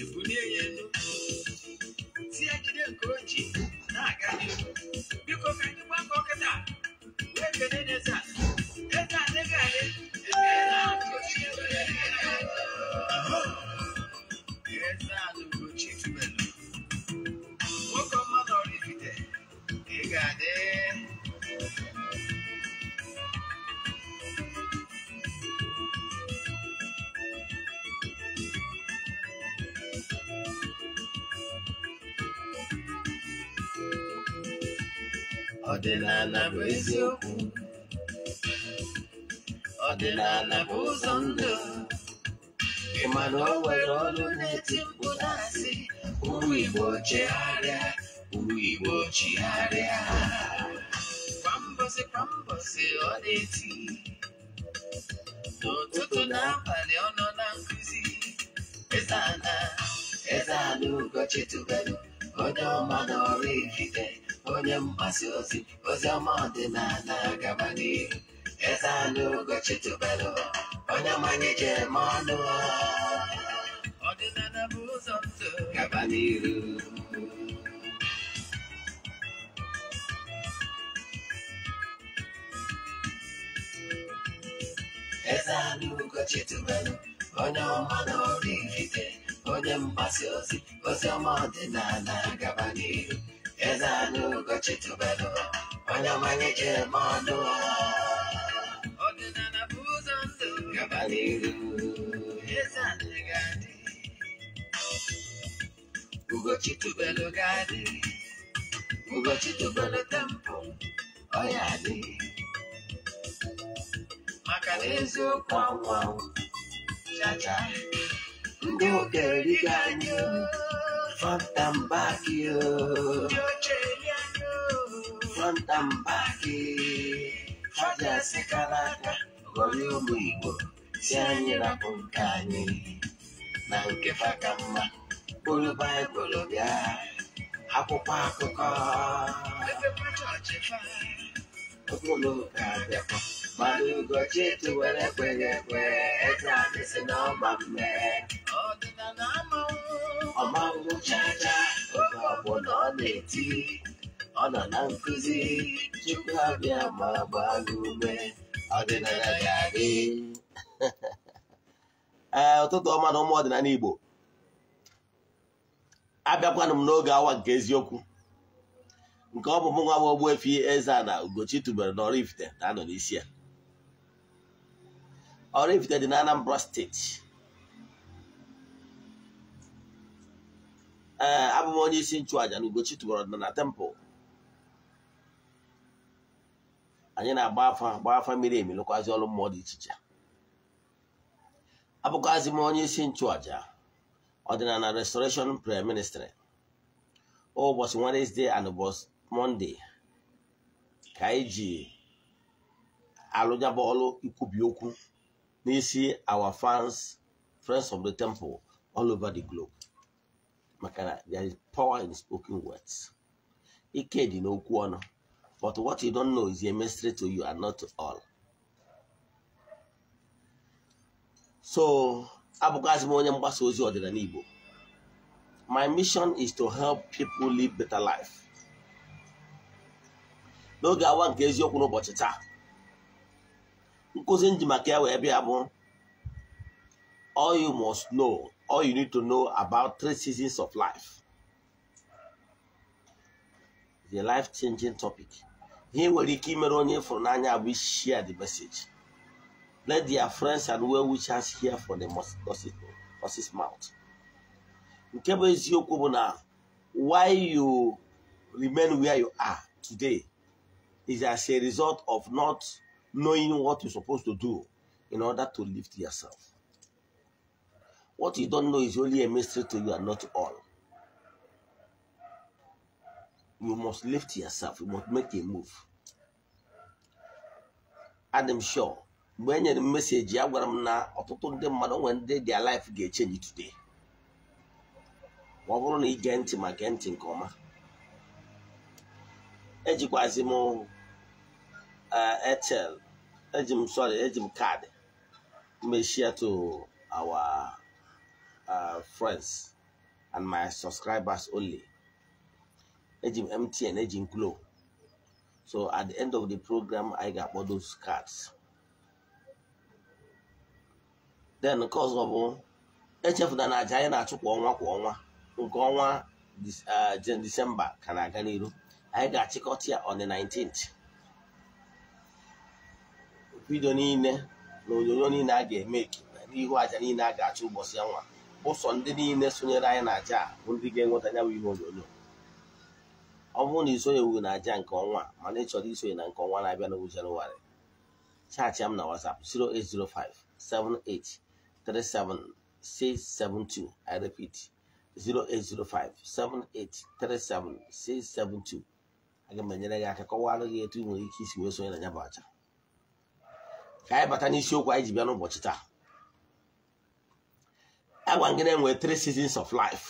ebulie ya elu tie jide nke o na-aga biko ka anyị gbakọ kịta wee kelee n'eze a chiarea, we will chiarea. Pambose, pambose, odeti. N'ụtụtụ na abalị ọnọ na nkuzi. Ezana, ezana ụgọchi tubelu, onye ọma na ọrụ ifite, onye mgbasa ozi, ozi ọma ọdịnala gaba n'ihu. Ezana ụgọchi tubelu, onye mmanye jere m ọnụ. Ọdịnala bụ ụzọ salugochitubelu onye ọma na orairite onye mgbasa ozi ozi ọma na gaba n'ihu eze anụgochitubelu onye ọmanye jere m ọnụ ọdịnala bụ ụzọ ndụ gaba n'ihu eze anyị ga-adị ugochitubelu ga-adị ugochitubelu tempụ ọ ya adịghị maka na chacha ndị oge erigo fanta front and back ndị oche eri anyị aka ụmụ igbo si anyị rapụ nke anyị na nke faka mma baịbụl bịa akwụkwọ akụkọ abịakwa Mmadụ Ugochitị tụwere ekweghị ekwe eze anyị si na ọma mme ọmanwụ chacha oge ọbụla ọ na-eti ọ nọ na nkụzi tupu abịa ma gbaa gị ume ọdịnala ga-adị ee eh, ụtụtụ ọma na ụmụ ọdịnala Igbo abịakwanụ m n'oge awa nke eziokwu nke ọ bụ mụnwa bụ Ogbuefi Eze-Ana Ugochi tubelu na Oraifite na-anọ n'isi ya ọrụ ifite dị n'Anambra steeti ee abụm onye isi nchụaja na Ugochi tụbọrọ na tempụl anyị na-agba afa agba afa mmiri emi lụkwazị ọrụ mmụọ dị iche iche abụkwazi m onye isi nchụàja ọdịnala restoration prayer ministry ụbọchị oh, Wednesday and ụbọchị Monday ka anyị ji alụjabụ ikwubi okwu you see our fans, friends of the temple, all over the globe. Makana, there is power in spoken words. Ikedi no kuono. But what you don't know is a mystery to you and not to all. So, abụgazi m My mission is to help people live better life. No awa nke eziokwu n'ụbọchị nkụzi nji maka ya wee bịa bụ all you must know all you need to know about three seasons of life the life changing topic ihe nwere ike imere onye ịfụrụ n'anya bụ share the message let their friends and well wishers hear for the nurse's mouth nke bụ eziokwu bụ na why you remain where you are today is as a result of not knowing what you're supposed to do in order to lift yourself. What you don't know is only a mystery to you and not all. You must lift yourself, you must make a move. Adam Shaw, mgbe e nyere m message a gwara m na ọtụtụ ndị mmadụ nwere ndị their life ga change today ma ọ bụrụ na ige ntị ma gee ntị nke ọma ejikwazi m Eh, airtel eji m sorry eji m kaadị e to our uh, friends and my subscribers only eji mtn eji m glo so at the end of the program anyị ga-akpọ those cards then nke ọzọ bụ echefula na aja anyị na-achụ kwa ọnwa kwa ọnwa nke ọnwa Disemba eh, ka na-aga n'iru anyị ga-achịkọta ya on the 19th vidio niile na onyonyo niile a ga-eme n'ihu aja niile a ga achọ ụbọchị ọnwa nwa ụsọ ndị niile sonyere anyị na aja bụ ndị ga-enweta ya bụ ihe onyonyo ọ bụrụ na isonyewu na aja nke ọnwa mana ị chọrọ isonye na nke ọnwa na-abịa n'owu jenụwarị chaachị m na WhatsApp 08057837672 I repeat 08057837672 aga m enyere gị aka kọwara gị etu ị nwere ike isi wee sonye na ya bụ aja ka anyị bata n'isiokwu anyị ji bịa n'ụbọchị taa agwa gị three seasons of life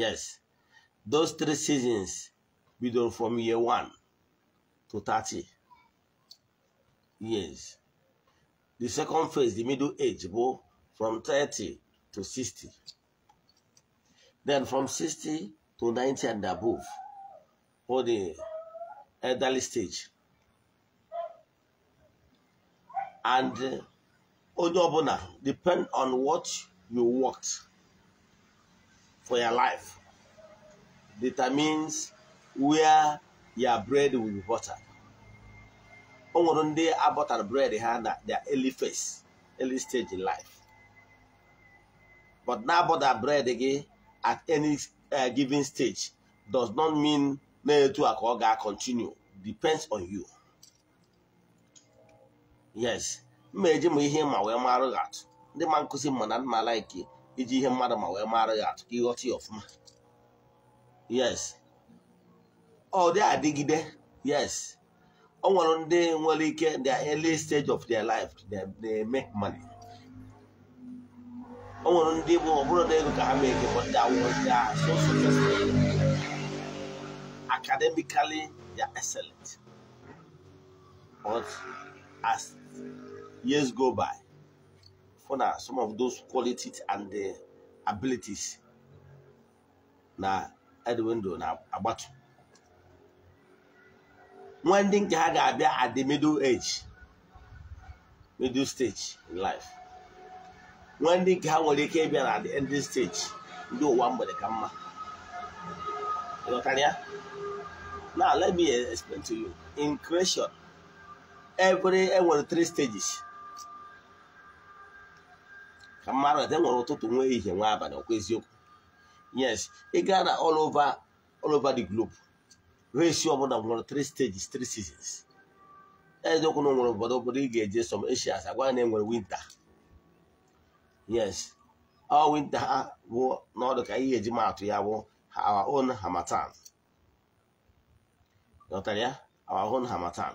yes those three seasons bidoro from year one to 30 years the second phase the middle age bụ from 30 to 60 then from 60 to 90 and above or the elderly stage and uh, onye depend on what you worked for your life determines where your bread will be buttered day, I bought abọtara bread had na their early phase early stage in life but bought that bread again at any uh, given stage does not mean me to a ka ga-continue depends on you yes mma eji ma ihe ma wee marụ gị atụ ndị ma nkụzi ma na mma laiki iji ihe mmadụ ma wee marụ gị atụ ka ịghọta ya ọfụma yes ọ dị adịgide yes ọ nwere ndị nwere ike their early stage of their life they make money ọ nwere ndị bụ ọ bụrụ na ego ka ha mee ike but they are so successful academically they are excellent but as years go by for na some of those qualities and the abilities na edwindo na agbatu nwa ndị nke ha ga-abịa at the middle age middle stage in life nwa ndị nke ha nwere ike ịbịa na the ending stage ndị ụwa mgbede ka mma ịghọtara ya now let me explain to you in creation every enwere three stages ka mmadụ ete nwere ụtụtụ nwe ihe nwa abalị ọkwa eziokwu yes ị gaa na all over all over the globe race ọbụla nwere three stages three seasons eziokwu na nwere obodo obodo ị ga-eje som Asia agwa na enwere winter yes ọ winter ha bụ n'ọdụ ka ihe eji maatụ ya bụ our own Harmattan. Nọtara ya our own Harmattan.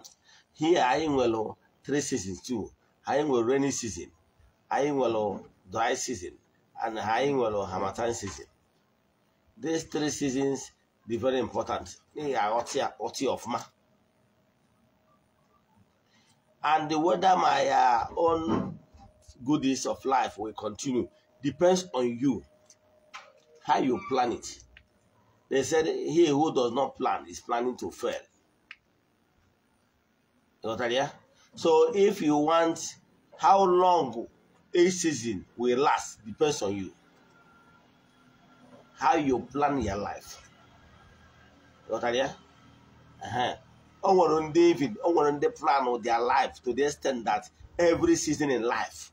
Here anyị nwere 3 seasons too. Anyị nwere rainy season. Anyị nwere oh, dry season. And anyị nwere oh, harmattan season. These three seasons be very important. And the weather my uh, own goodies of life will continue. Depends on you. How you plan it. They said, he who does not plan is planning to fail. Notaria? So if you want how long a season will last depends on you. How you plan your life. Notaria? Uh-huh. O on David, even on nwere plan of their life to the extent that every season in life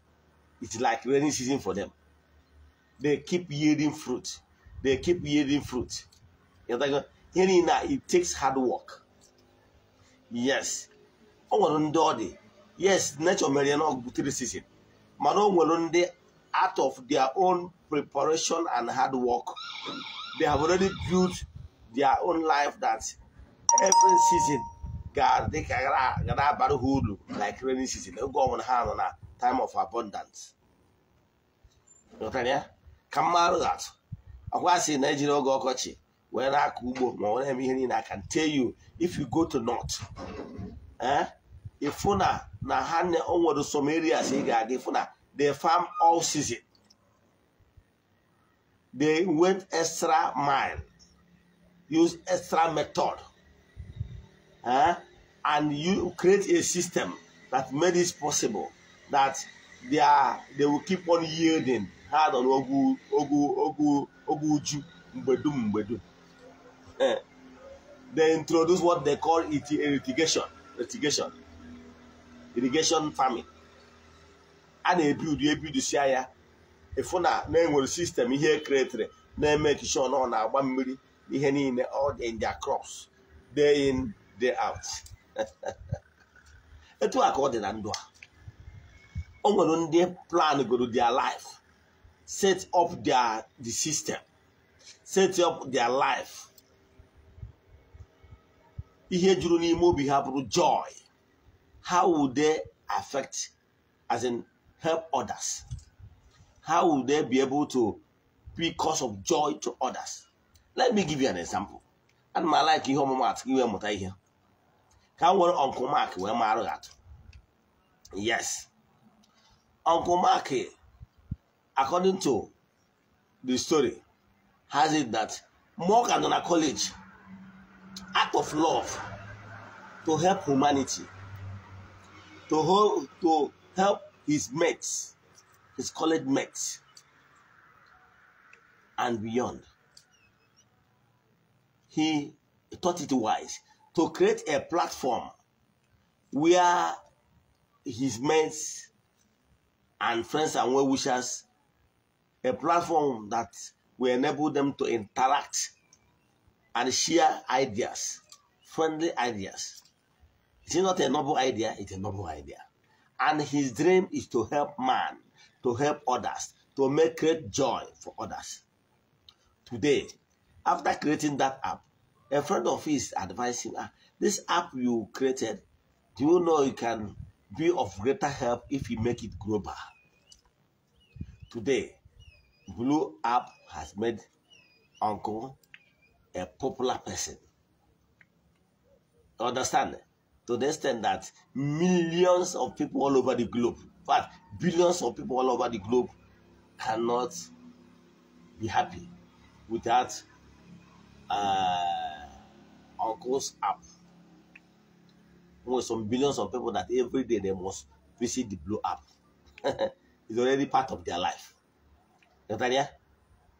it's like rainy season for them. They keep yielding fruit. They keep yielding fruit. You know, it takes hard work. Yes, Ọ nwere ndị ọ dị yes nature mere ya na ọgụgụ three season mana ọ nwere ndị out of their own preparation and hard work they have already built their own life that every season ga-adị ka gara na-abara ha uru like rainy season oge ọbụla ha nọ na time of abundance ka mmarụ atụ ọkwa sị na ejiri oge ọkọchị wee na-akọ ugbo ma ọ na-eme ihe niile I can tell you if you go to north eh if na na ha nwere some areas ị ga-aga na they farm all season they went extra mile use extra method eh? and you create a system that made it possible that they are they will keep on yielding Hard on ogu ogu ogu uju mgbe dum eh. they introduce what they call it irrigation. irrigation farming a na ebi ebidusia ya ịfụ na na-enwere sistem ihe ekretịrị na-eme kishon ọ na-agba mmiri ihe niile all in their crops day in day out etu a ka ọ dị na ndụ a o nwere ndị plan goro their life set up their the system set up their life ihe juru n'ime obi ha bụrụ joy how will they affect, as in help others? How will they be able to be cause of joy to others? Let me give you an example. And my like you home at you i hear Can we, Uncle Mark where Maro at? Yes. Uncle Mark, according to the story, has it that Morgan on a college act of love to help humanity to hold to help his mates, his college mates, and beyond. He thought it wise to create a platform where his mates and friends and well wishers, a platform that will enable them to interact and share ideas, friendly ideas. It is not a noble idea? It's a noble idea. And his dream is to help man, to help others, to make great joy for others. Today, after creating that app, a friend of his advised him, ah, this app you created, do you know it can be of greater help if you make it global? Today, Blue App has made Uncle a popular person. Understand? to the extent that millions of people all over the globe, but billions of people all over the globe cannot be happy without uh, Uncle's app. With some billions of people that every day they must visit the Blue app. it's already part of their life. Natalia?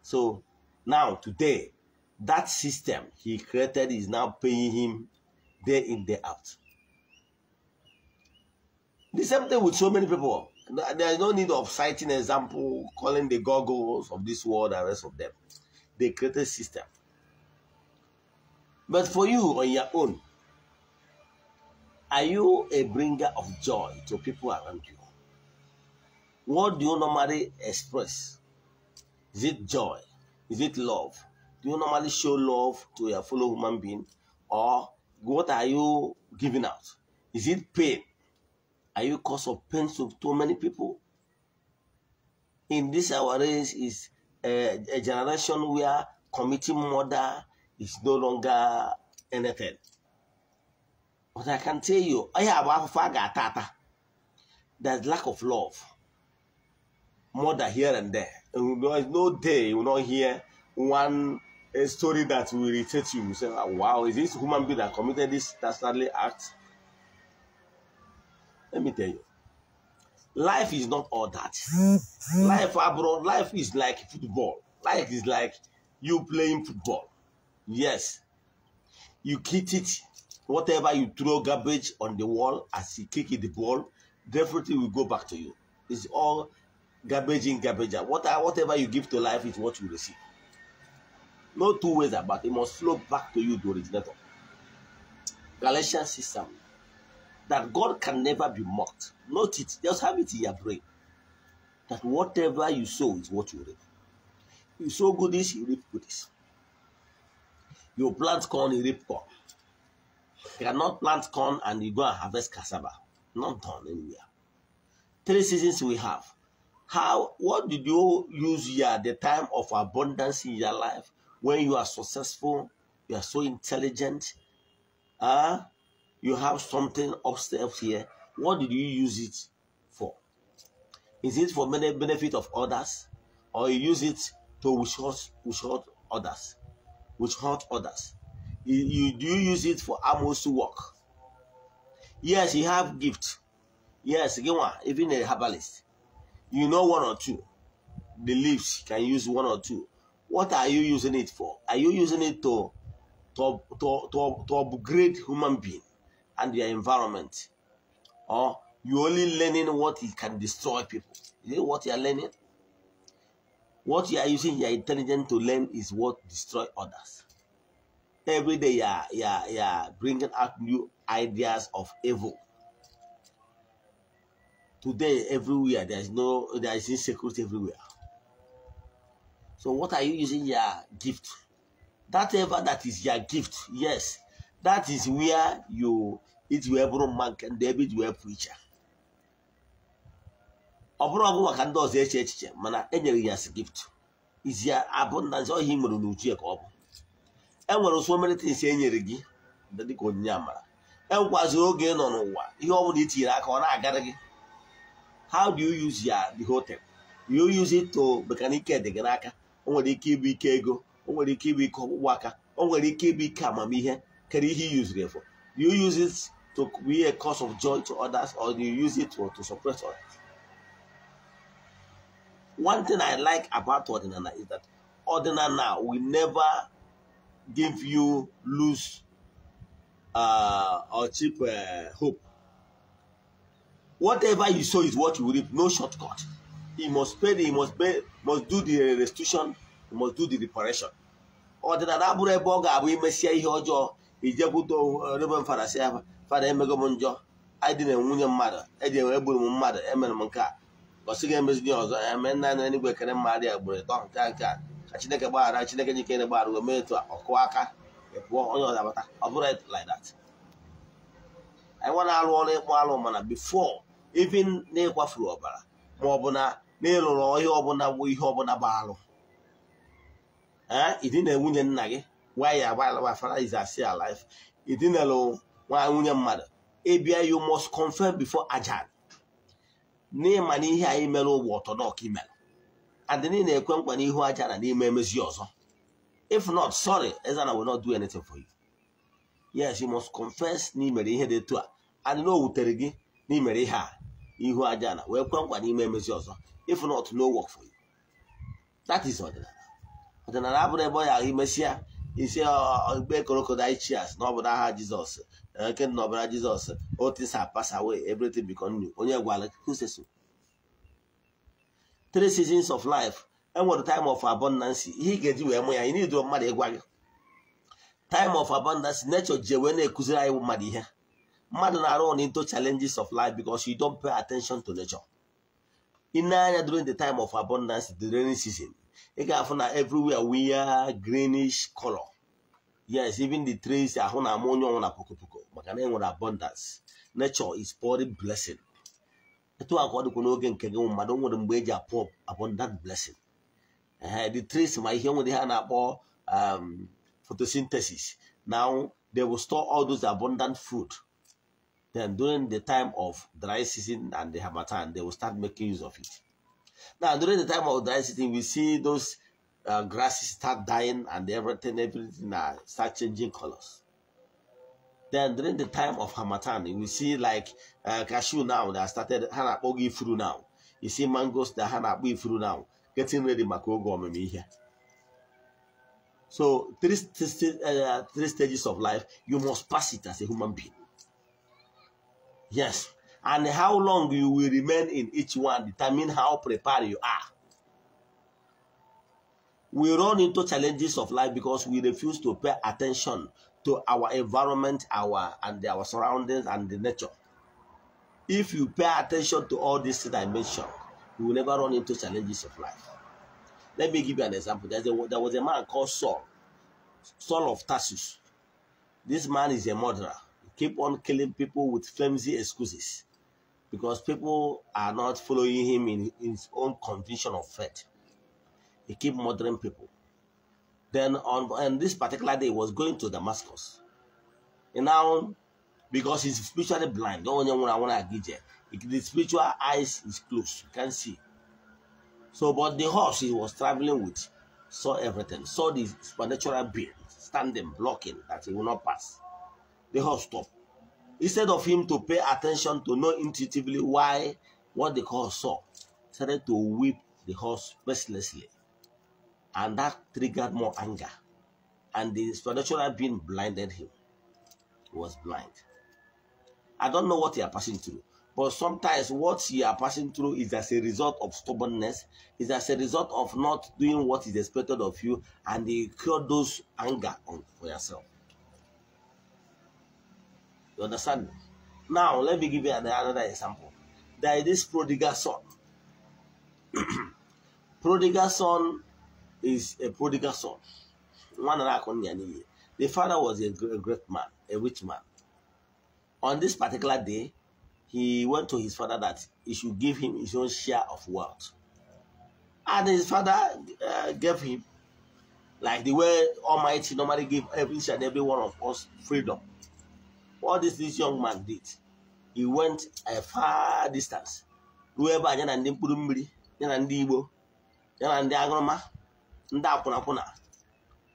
So now, today, that system he created is now paying him day in, day out. The same thing with so many people. There is no need of citing example, calling the goggles of this world and rest of them. They created system. But for you on your own, are you a bringer of joy to people around you? What do you normally express? Is it joy? Is it love? Do you normally show love to your fellow human being? Or what are you giving out? Is it pain? Are you cause of pain to too many people? In this our age is a, eh, a generation where committing murder is no longer anything. But I can tell you, I have a ah. There's lack of love. Murder here and there. And there is no day you will not hear one eh, story that will irritate you. You say, ah, wow, is this human being that committed this dastardly act? Let me tell you. Life is not all that. life abroad, ah, life is like football. Life is like you playing football. Yes. You kick it, whatever you throw garbage on the wall as you kick it the ball, definitely will go back to you. It's all garbage in, garbage out. What, whatever you give to life is what you receive. No two ways about it. It must flow back to you, the originator. Galatians 6 7 that God can never be mocked. Note it, just have it in your brain. That whatever you sow is what you reap. You sow goodies, you reap goodies. You plant corn, you reap corn. You cannot plant corn and you go and harvest cassava. Not done anywhere. Three seasons we have. How what did you use here at the time of abundance in your life when you are successful, you are so intelligent, ah. You have something upstairs here. What did you use it for? Is it for benefit of others? Or you use it to which hurt, which hurt others? Which hurt others? You, you, do you use it for almost work? Yes, you have gift. Yes, again one, even a herbalist. You know one or two. The leaves can use one or two. What are you using it for? Are you using it to to, to, to, to upgrade human being? and their environment. Or you're only learning what it can destroy people. Is it what you are learning? What you are using your intelligence to learn is what destroy others. Every day you are, you are, you are bringing out new ideas of evil. Today, everywhere, there is no, there is insecurity everywhere. So what are you using your gift? That ever that is your gift, yes, that is where you it will bụrụ mma nke ndị ebe iji wee pụ iche ọ bụrụ ọgụ maka ndị ọzọ eche echiche mana enyere ya as gift izi ya abụ na nze ọhịa nwere n'uju ya ka ọ bụ enwere ụsọ e enyere e gị dịka onyinye amara enwekwazi oge ị nọ n'ụwa ihe ọ bụla itinyere aka ọ na-agara gị how do you use ya the hotel? you use it to maka dị gị n'aka o nwere ike ịbụ ike ego o nwere ike ịbụ ike ọgwụgwụ aka o nwere ike ịbụ ike amamihe can he use it for? Do you use it to be a cause of joy to others or do you use it to, to suppress others? One thing I like about Ordinana is that Ordinana will never give you loose uh, or cheap uh, hope. Whatever you sow is what you reap, no shortcut. He must pay, he must pay, must do the restitution, he must do the reparation. Ordinana ijekwute eh, rebe m fada si ya fada emego m njọ anyị na nwunye mmadụ eji enwe egburu m mmadụ emere m nke a gosi ga emezi gị ọzọ eme eh, nna na n'igwe kere mmadụ ya gburu ịtọ nke nke a ka chineke gbaghara chineke jikere gbaghara gwo mee etu a ọkụ aka ịpụọ e onye ọzọ abata ọ bụrụ like that anyị nwa na-alụ ọrụ ịkpọ alụ mana before even n'ịkwafuru ọbara ma ọ na n'ịlụrụ ọhịa ọbụla bụ ihe ọbụla bụ alụ ee eh, ịdị na nwunye nna gị why your my is is still alive idinelu nwa nwunye mmadụ ịbịa you must confirm before ajan n'ịma na ihe anyị mere ụgbọ ọtọdọk imere and niile ekwe nkwa n'ihu aja na n'ime emezi ọzọ if not sorry ezana will not do anything for you yes you must confess na ihe dị etu a and na gị na ihe a ihu aja na wee kwe nkwa n'ime emezi ọzọ if not no work for you that is ọdịnala ọdịnala abụrụ ebe ọ ya imesịa isi igbe crocodile cheers na ọbụla aha jizọs nke na ọbara jizọs otis pass away everything become new onye gwara kuseso three seasons of life enwere time of abundance ihe ị ga-eji wee mụ ya ị na-eduro mmadụ ịgwa gị time of abundance nature ji wee na ekuziri anyị mmadụ ihe mmadụ na-arụ on into challenges of life because you don pay attention to nature ị na-anya during the time of abundance the rainy season ị ga-afụ na everywhere wee greenish color yes even the trees are na ammonia onye ọnwụ na pokopoko maka na abundance nature is pouring blessing etu a ka ọ dịkwa n'oge nke gị mmadụ nwere mgbe eji apụ abundant blessing the trees ma ihe nwere ha na um, photosynthesis now they will store all those abundant food then during the time of dry season and the hamatan, they will start making use of it now, during the time of dry season, we see those uh, grasses start dying and everything, everything uh, start changing colors. Then during the time of Hamatan, we see like uh, cashew now that started Hanapogi through now. You see mangoes that Hanapogi through now, getting ready Makogo here. So three, three, uh, three stages of life, you must pass it as a human being. Yes, and how long you will remain in each one determine how prepared you are. We run into challenges of life because we refuse to pay attention to our environment, our and our surroundings and the nature. If you pay attention to all these dimensions, you will never run into challenges of life. Let me give you an example. A, there was a man called Saul, Saul of Tarsus. This man is a murderer. He keep on killing people with flimsy excuses because people are not following him in his own conviction of faith. He keep murdering people. Then on and this particular day, was going to Damascus. And now, because he's spiritually blind, the spiritual eyes is closed, you can't see. So, but the horse he was traveling with saw everything, saw the supernatural being standing, blocking that he will not pass. The horse stopped instead of him to pay attention to know intuitively why what the horse saw, started to whip the horse mercilessly. And that triggered more anger. And the spiritual being blinded him. He was blind. I don't know what you are passing through. But sometimes what you are passing through is as a result of stubbornness, is as a result of not doing what is expected of you, and you cure those anger on, for yourself. You understand? Now, let me give you another example. There is this prodigal son. prodigal son is a prodigal son. The father was a great man, a rich man. On this particular day, he went to his father that he should give him his own share of wealth. And his father uh, gave him, like the way Almighty normally give every and every one of us freedom. all these this young man did he went a far distance ruo ebe a ya na ndị mkpụrụ mmiri ya na ndị igbo ya na ndị agụrụma, ndị akwụnakwụna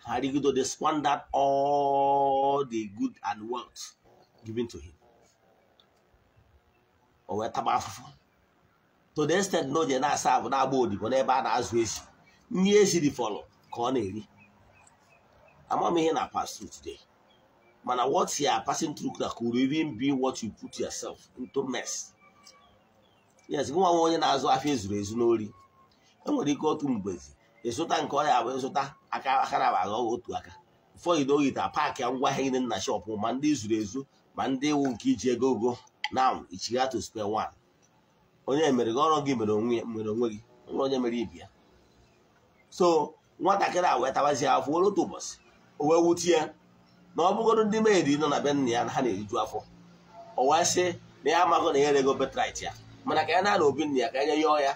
ha rigido they squandered all the good and wealth given to him o wee taba afụfụ to the extent na oje na-asa abụ na-agba odibo n'ebe a na-azụ ezi nri eziri ka ọ na-eri Amamihe na pastor today mana what you are passing through na could even be what you put yourself into mess yes nwa nwa onye na-azụ afọ ezuru ezu n'ori enwere ike otu mgbezi ịzụta nke ọrịa bụ ịzụta aka akara bụ otu aka ụfọdụ n'ogita paakị ngwa ahịa niile na shọpụ ma ndị zuru ezu ma ndị wu nke iji ego ogo na ichigato square wan. onye mere gị ọrụ gị mere onwe gị nwere onye mere ibi so nwatakịrị a wee tabazie afọ otu ụbọchị o wee wutie na ọ bụgoro ndị maid nọ na be nna ya na ha na-eriju afọ ọwa sị na ya amaghị na ya ego betrit ya mana ka ya na-ana obi nna ya ka ya yọọ ya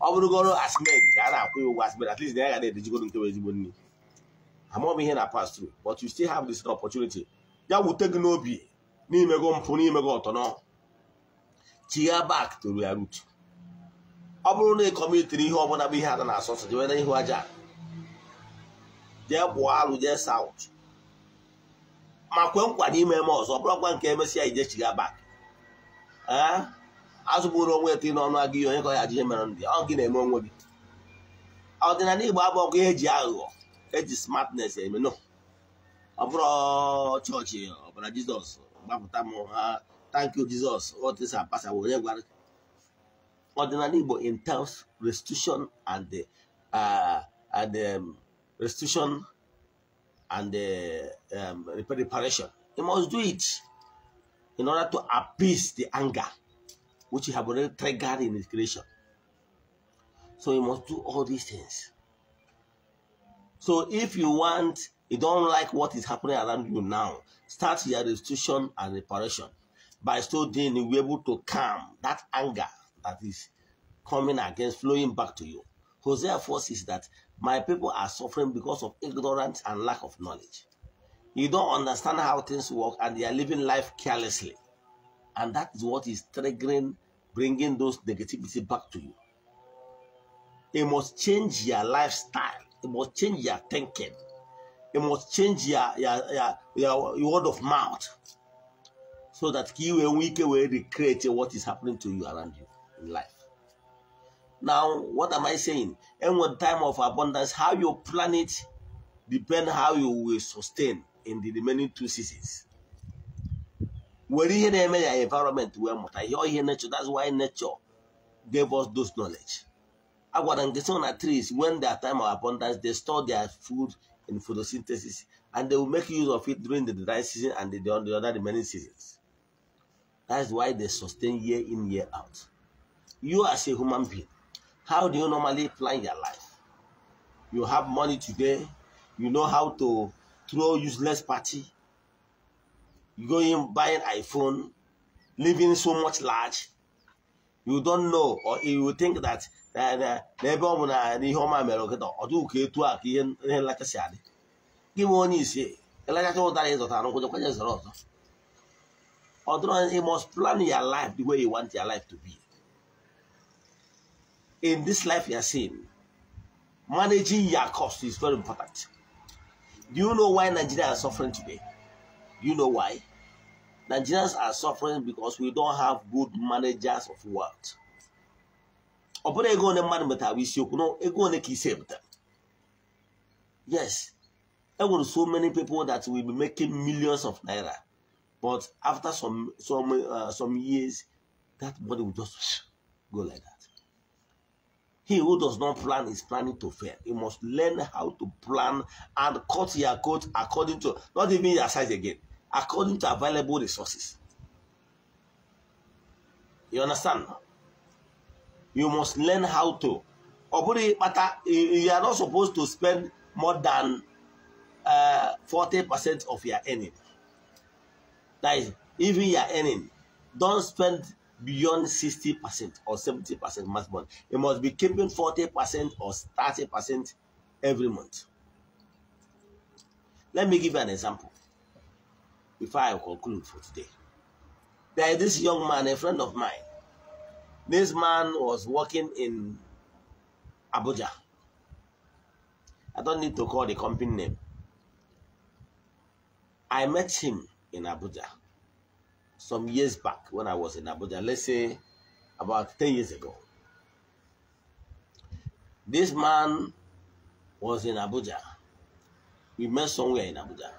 ọ bụrụgoro asmed ka a na-akwụ ya ụgwọ asmed at least na ya ga na nke nkewa ezigbo nri amaghị ihe na pass but you still have this opportunity ya wute gị n'obi n'imego mpụ n'imego ọtọnọ chigha bak to ya root ọ bụrụ na ịkọmitiri ihe ọbụla bụ ihe ada na-asọsọ jewere ihu aja jee kpụọ alụ jee saut ma kwe nkwa n'ime eme ọzọ bụrụkwa nke emesịa ijechiga bak ee eh? azụbụrụ onwe eto n'ọnụ aga ihe onye ka ya ajije mere ndị ọ na-eme onwe gị ọdịnala igbo abụ ọgụ eji aghụghọ eji smartness eme no ọ bụrụ chọọchị ọbara jizọs gbapụta m ha thank jizọs onye gwara ọdịnala igbo in terms restitution and the, uh, um, restitution and the uh, um, reparation. He must do it in order to appease the anger which he have already triggered in his creation. So he must do all these things. So if you want, you don't like what is happening around you now, start your restitution and reparation. By so doing, you'll be able to calm that anger that is coming against, flowing back to you. Hosea forces that my people are suffering because of ignorance and lack of knowledge. You don't understand how things work and they are living life carelessly. And that is what is triggering, bringing those negativity back to you. You must change your lifestyle. You must change your thinking. You must change your, your, your, your, your word of mouth so that you and we can recreate what is happening to you around you in life. Now, what am I saying? And what time of abundance, how you plan it depends how you will sustain in the remaining two seasons. Were you na-eme environment wee you ihe ihe nature that's why nature gave us those knowledge. I nke so the trees when their time of abundance they store their food in photosynthesis and they will make use of it during the dry season and the, the other remaining seasons. That's why they sustain year in year out. You as a human being how do you normally plan your life? You have money today. You know how to throw useless party. You go in buying iPhone, living so much large. You don't know, or you think that eh, eh, n'ebe ọ bụ na ihe ọma mere nkịta ọ dịghị you must plan your life the way you want your life to be in this life you are seeing, managing your cost is very important. Do you know why Nigerians are suffering today? Do you know why? Nigerians are suffering because we don't have good managers of wealth. Yes. There ego one so many people that will be making millions of naira but after some some uh, some years that money will just go like that he who does not plan is planning to fail. You must learn how to plan and cut your coat according to, not even your size again, according to available resources. You understand? You must learn how to. You are not supposed to spend more than 40% uh, of your earning. That is, even your earning, don't spend beyond 60% or 70% month month. it must be keeping 40% or 30% every month. Let me give you an example before I conclude for today. There is this young man, a friend of mine. This man was working in Abuja. I don't need to call the company name. I met him in Abuja some years back when I was in Abuja, let's say about 10 years ago. This man was in Abuja. We met somewhere in Abuja,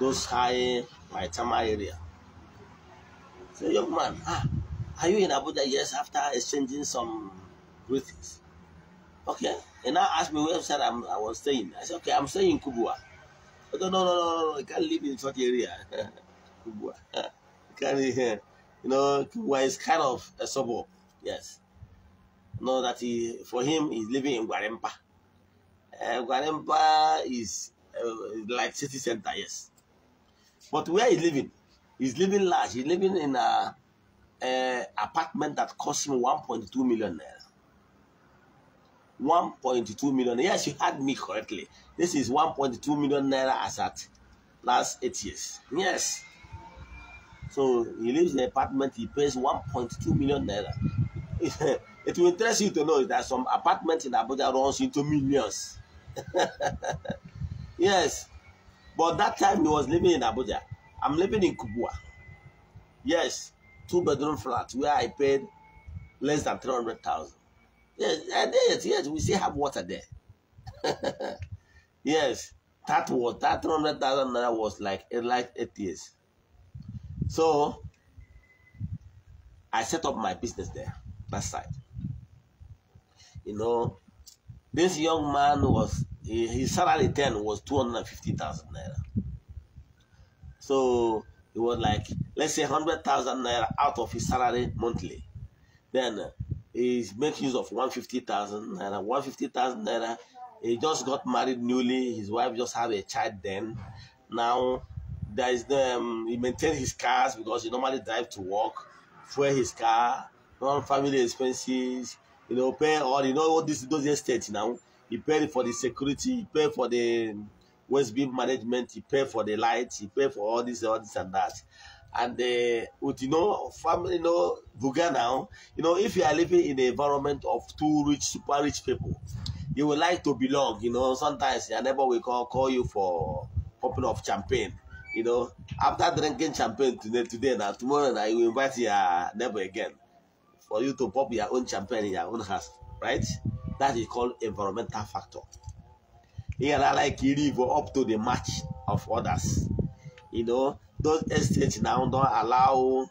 those high Maitama area. So, young man, ah, are you in Abuja? Yes, after exchanging some greetings. Okay. And now asked me where I'm, I was staying. I said, okay, I'm staying in Kubwa. I oh, said, no, no, no, no, no, you can't live in such area. Kubwa. You know, Kibwa is kind of a suburb. Yes. know that he, for him, he's living in Guarempa. Uh, eh, Guarempa is uh, like city center, yes. But where he's living, he's living large. He's living in a, a eh, apartment that cost him 1.2 million naira. 1.2 million. Yes, you heard me correctly. This is 1.2 million naira as at last eight years. Yes. So he leaves the apartment, he pays 1.2 million naira. it will interest you to know that some apartments in Abuja runs into millions. yes, but that time he was living in Abuja. I'm living in Kubwa. Yes, two bedroom flat where I paid less than 300,000. Yes, yes, yes, we still have water there. yes, that was that 300,000 naira was like, like eight years. So I set up my business there, that side. You know, this young man was his salary then was two hundred and fifty thousand naira. So it was like let's say hundred thousand naira out of his salary monthly. Then uh, he makes use of one fifty thousand naira. One fifty thousand naira. He just got married newly. His wife just had a child then. Now there is the um, he maintains his cars because he normally drive to work, fuel his car, non-family expenses. You know, pay all you know all this those estates now. He paid for the security, he paid for the waste bin management, he paid for the lights, he paid for all this, all this and that. And uh, with you know family, you know Buga now, you know if you are living in the environment of too rich, super rich people, you would like to belong. You know sometimes your neighbor will call call you for popping of champagne you know, after drinking champagne today, today now, tomorrow now, you invite your neighbor again for you to pop your own champagne in your own house, right? That is called environmental factor. Here, I like you live up to the match of others. You know, those estates now don't allow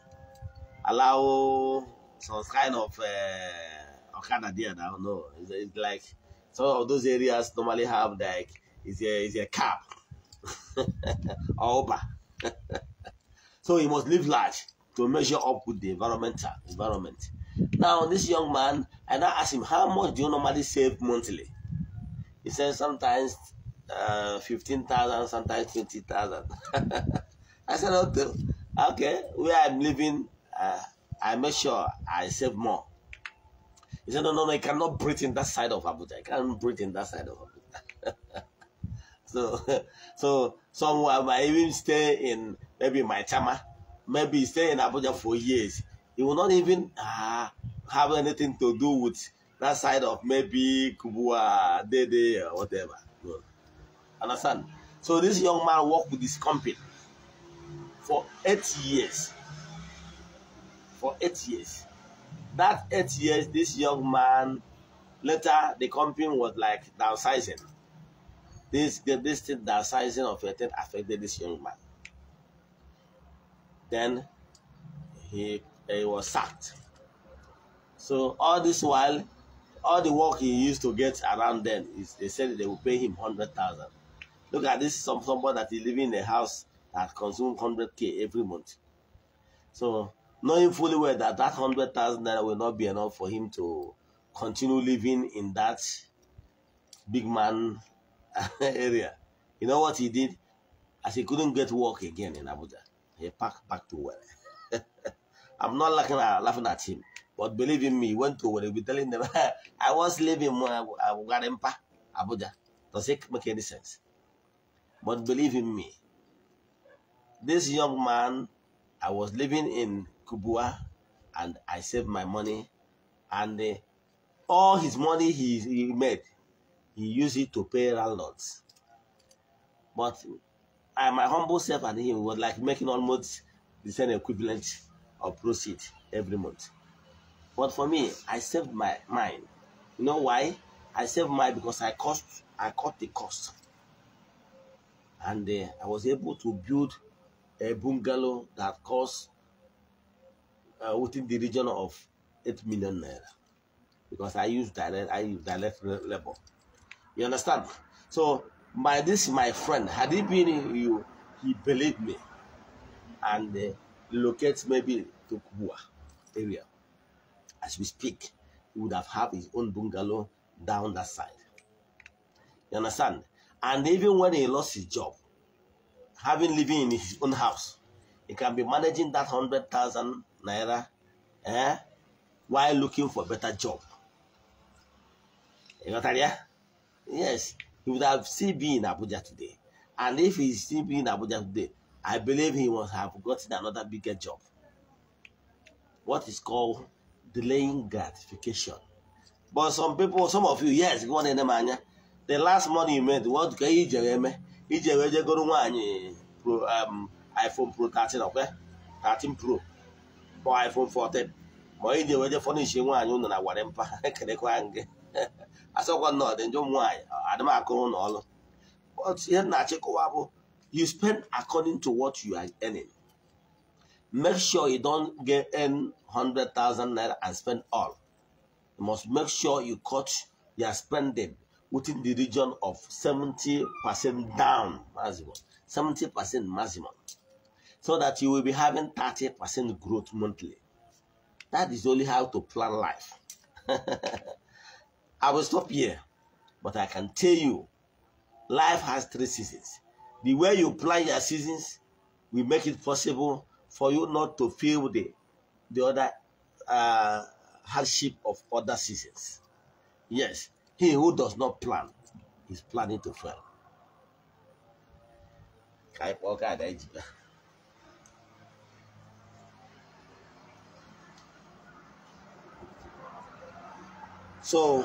allow some kind of uh, Okada there now. No, it's, it's like some of those areas normally have like it's a, it's a cap all so he must live large to measure up with the environmental environment. Now this young man, and I asked him, how much do you normally save monthly? He said sometimes uh, 15,000, sometimes 20,000. I said, okay, okay, where I'm living, uh, I make sure I save more. He said, no, no, no, I cannot breathe in that side of Abuja. I can't breathe in that side of Abuja. So, so someone might even stay in maybe my chama, maybe stay in Abuja for years. He will not even uh, have anything to do with that side of maybe Kubua, Dede, or whatever. No. Understand? So this young man worked with this company for eight years. For eight years. That eight years, this young man, later the company was like downsizing. This this thing, sizing of your tent affected this young man. Then he, he was sacked. So all this while, all the work he used to get around then, is, they said they will pay him 100,000. Look at this, some, somebody that is living in a house that consumes 100K every month. So knowing fully well that that 100,000 naira will not be enough for him to continue living in that big man area. You know what he did? As he couldn't get work again in Abuja, he packed back to where. I'm not laughing at, laughing at him, but believe in me, he went to where he be telling them, I was living in uh, uh, Abuja. Does it make any sense? But believe in me, this young man, I was living in Kubua and I saved my money and uh, all his money he, he made he used it to pay landlords. But I, my humble self and him was like making almost the same equivalent of proceed every month. But for me, I saved my mine. You know why? I saved mine because I cost I cut the cost. And uh, I was able to build a bungalow that cost uh, within the region of 8 million naira because I use direct I use direct labor. You understand? So my this my friend, had he been you, he believed me, and uh, locates maybe to Kubwa area. As we speak, he would have had his own bungalow down that side. You understand? And even when he lost his job, having living in his own house, he can be managing that hundred thousand naira, eh, while looking for a better job. You got that, yeah? Yes, he would have still been in Abuja today. And if he still be in Abuja today, I believe he must have gotten another bigger job. What is called delaying gratification. But some people, some of you, yes, go wan enema anya The last money you made, what can you do? You just go to one pro, um, iPhone Pro 13, okay? 13 Pro. Or iPhone 14. But you just furnish one, you know, na mpa Kerekwa nge. asọkwa nọdụ don't adamakụrụ na ọlụ ihe na-achịkọwa bụ you spend according to what you are earning make sure you don't get earn 100,000 naira and spend all you must make sure you cut your spending within the region of 70% down maximum 70% maximum so that you will be having 30% growth monthly that is only how to plan life I will stop here, but I can tell you, life has three seasons. The way you plan your seasons will make it possible for you not to feel the, the other uh, hardship of other seasons. Yes, he who does not plan is planning to fail. So,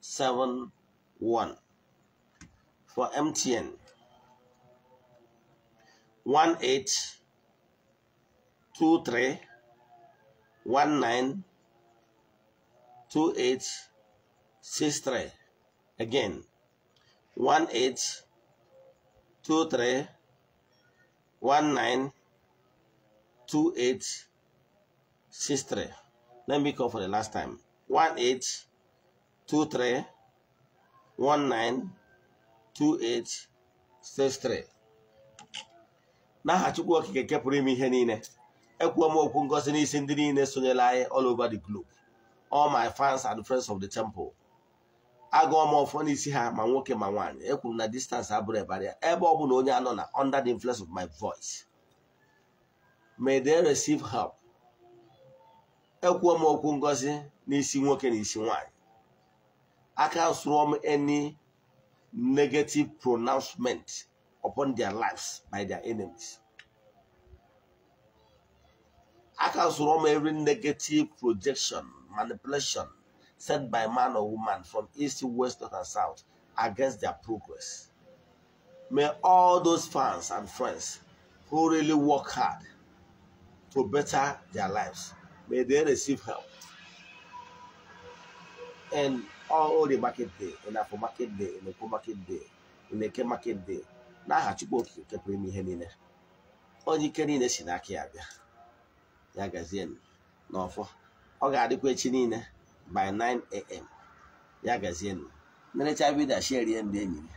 seven one for MTN one eight two three one nine two eight six three again one eight two three one nine two eight six three let me call for the last time one eight two three one nine two eight six three n'aha Chukwu Okike nke pụrụ ime ihe niile ekwuo m okwu ngozi n'isi ndị niile sonyela anyị all over the globe all my fans and friends of the temple agụọ m ọfọ n'isi ha ma nwoke ma nwaanyị ekwuru na distance abụrụ ya. ebe ọ bụla onye anọ na under the influence of my voice may they receive help ekwuo m okwu ngozi n'isi nwoke na isi nwaanyị I can swarm any negative pronouncement upon their lives by their enemies. I can swarm every negative projection, manipulation sent by man or woman from east, west, north, and south against their progress. May all those fans and friends who really work hard to better their lives, may they receive help. And all orie market day afọ market day onekwo market day eke market day na chukwu okike nke pụrụ ihe niile onye ike niile si n'aka ya bịa ya gazie n'ọfọ ọ ga-adịkwa echi niile by 9 am ya gazie nerecha vidio shierie ndị enyi ya